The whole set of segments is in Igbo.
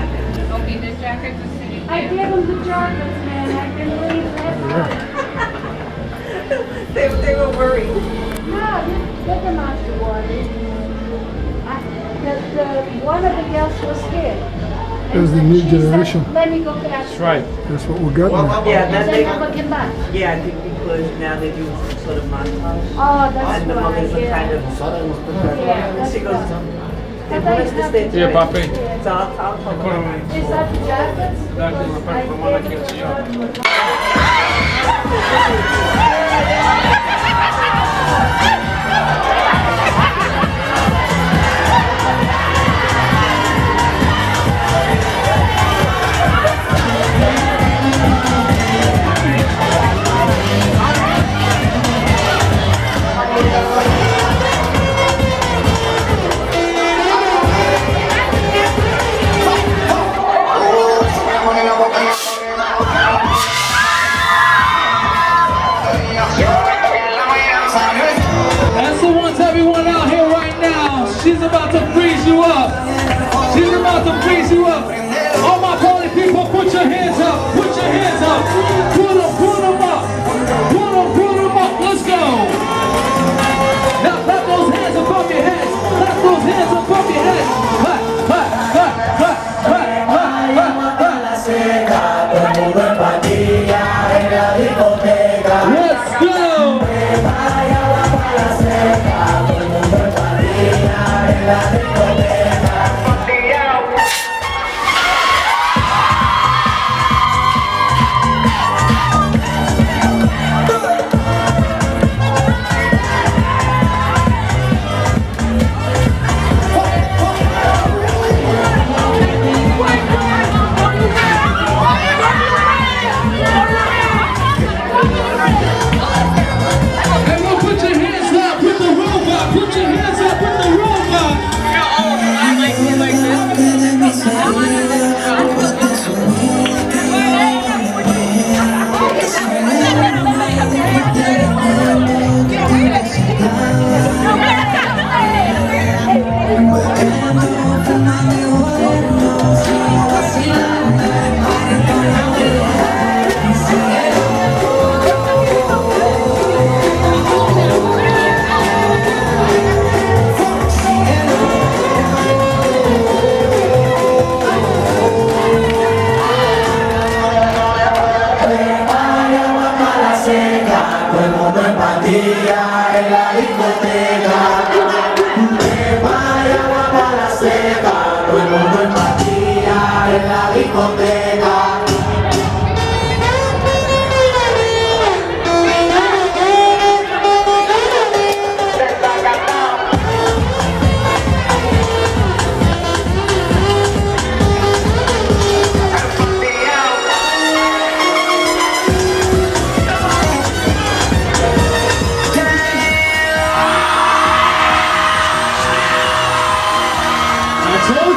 Okay, the jackets I gave them the jackets, man. I've been waiting that they, they were worried. No, they them not the water. I, the, the, one of the girls was scared. It was the new generation. Said, Let me go catch. That's right. That's what we got. Well, yeah, that's they, Yeah, I think because now they do some sort of montage. Oh, that's and the mothers right, yeah. kind of. Yeah, that's she goes. Right. E papi? Tá, tá. Dá uma parte pra mão aqui, assim, ó.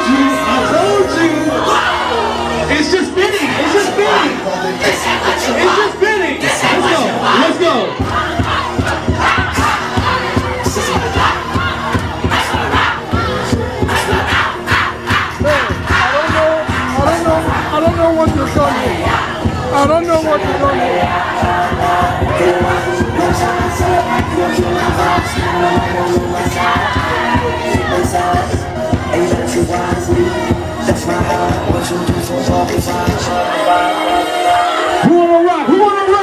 I told you. It's just spinning, it's just spinning. It's just spinning. Let's go, let's go. I don't know what you're I don't know what you're you better treat That's my heart, what you do for walking fine. Who wanna rock? Who wanna rock?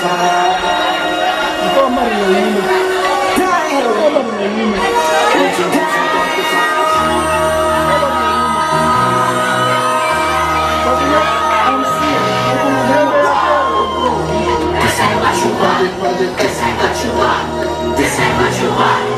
This ain't what you want. This ain't what you want.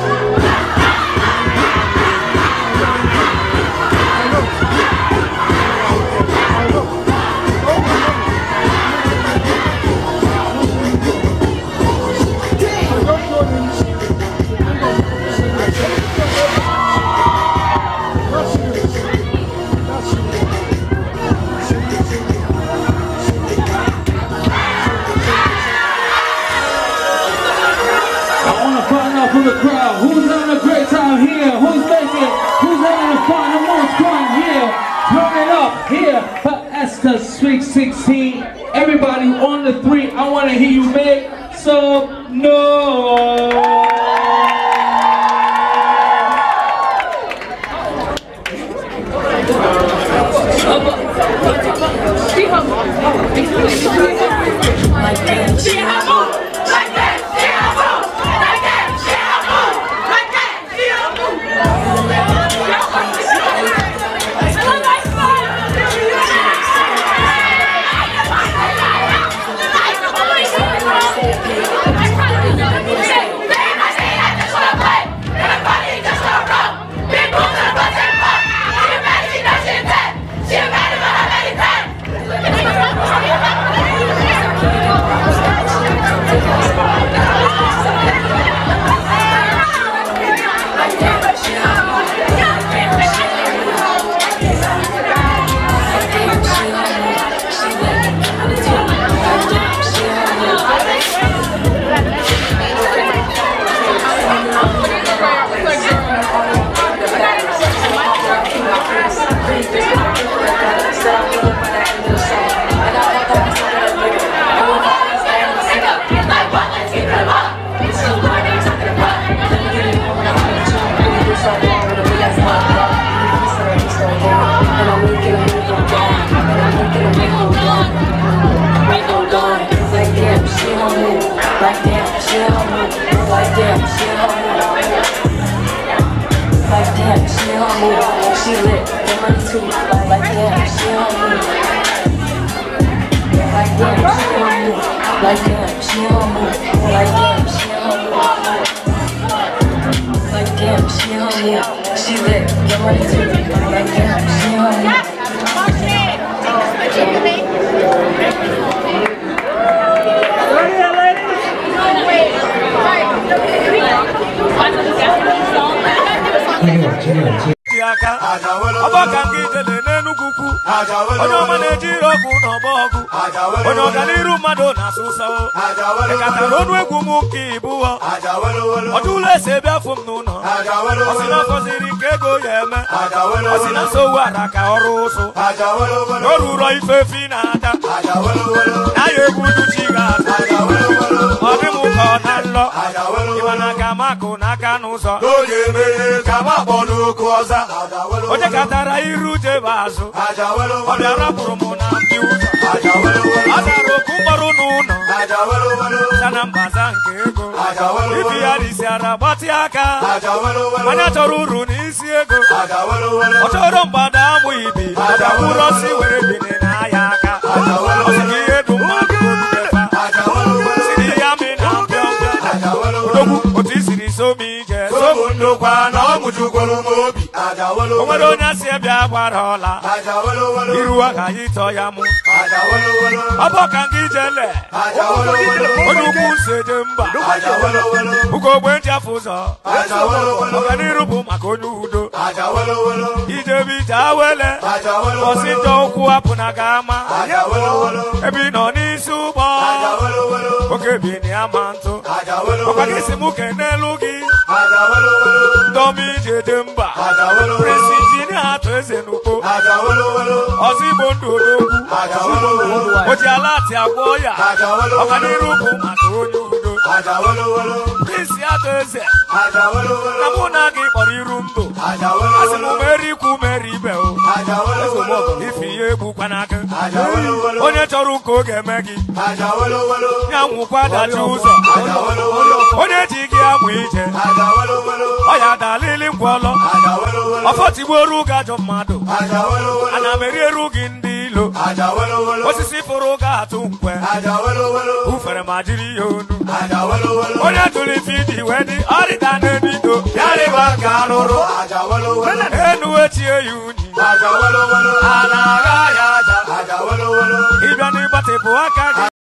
So no! money too. Like, like damn, she on me. Like damn, she on me. Like damn, she on me. Like damn, she on me. Like damn, she on me. She lit. Get money too. Like damn, she on me. Cheers, cheers, cheers. aka ọgbọ ka nke ijele n'enugwu kwu onye ọma na-eji ọgwụ na ọgba ọgwụ onye ọganiru mmadụ na-asụsawo ekatara ọnụ egwu m nke ibụọ ọdụụlọ esi ebe afọ m n'ụlọ ọsị na afọziri nke ego ya eme ọsị na nsowu ara ka ọrụ ụsụ o ruro ifefe na-ata na ya egwu uduchi ga-ata ọ na alọ ịmana ka makụ n'aka n'ụzọ onye katara iru jebe azụ ọ bịa rapụrụ m na ndị ụzọ ọ dara oku mkpọrọ n'ụlọ sana mbaza nke ego ibi ya dịsiara gbatị aka onye chọrọ uru n'isi ego ọ chọrọ mgbada amụ ibi ọdaburosi were bine n'ahịa aka ọ ọkwa na ọ mụjugoro m obi onwere onye asị bịa gbara ọla iruwa ka anyị tọọ ya mụ ọbọ ka ndị jele onye ukwu se dị mba ogbe ndị afọ ụzọ ọganiru bụ maka onye udo ijebe ije awele ọsịtọ ụkwụ apụ na gị ama ebe ị nọ n'isi ụgbọ oke bi na ya ntụ ọkwa gị si m kene n'elu gị Tommy Jedemba Prince Engineer Toezenukpo Ọsibọ Ndodogwu Oji Aláàtì Agbọ́ọ̀yà Ọ̀kanírúkú àti onye udo Prince Adaeze Na mụ na gị kpọrọ iru ndụ Asị m merikwu mere onye chọrọ ụka oge eme gị ya nwụkwa dachi ụzọ onye ji gị amụ ije ọ ya dalili ngwọlọ ọfọtigbuoru ụga ajọ mmadụ ana m eriere gị ndị ilo osisi fụrụ ụga atụ nkwe ufere ma jiri ihe onu onye tụrụ ife iji wee dị ọrịda n'ebido enuwe chie ya unyi a na ya ịbịa n'ịgbatịpụ aka